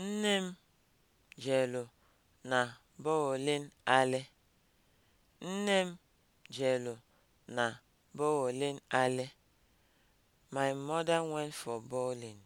Nne m jelu na bowling alley. Nne m My mother went for bowling.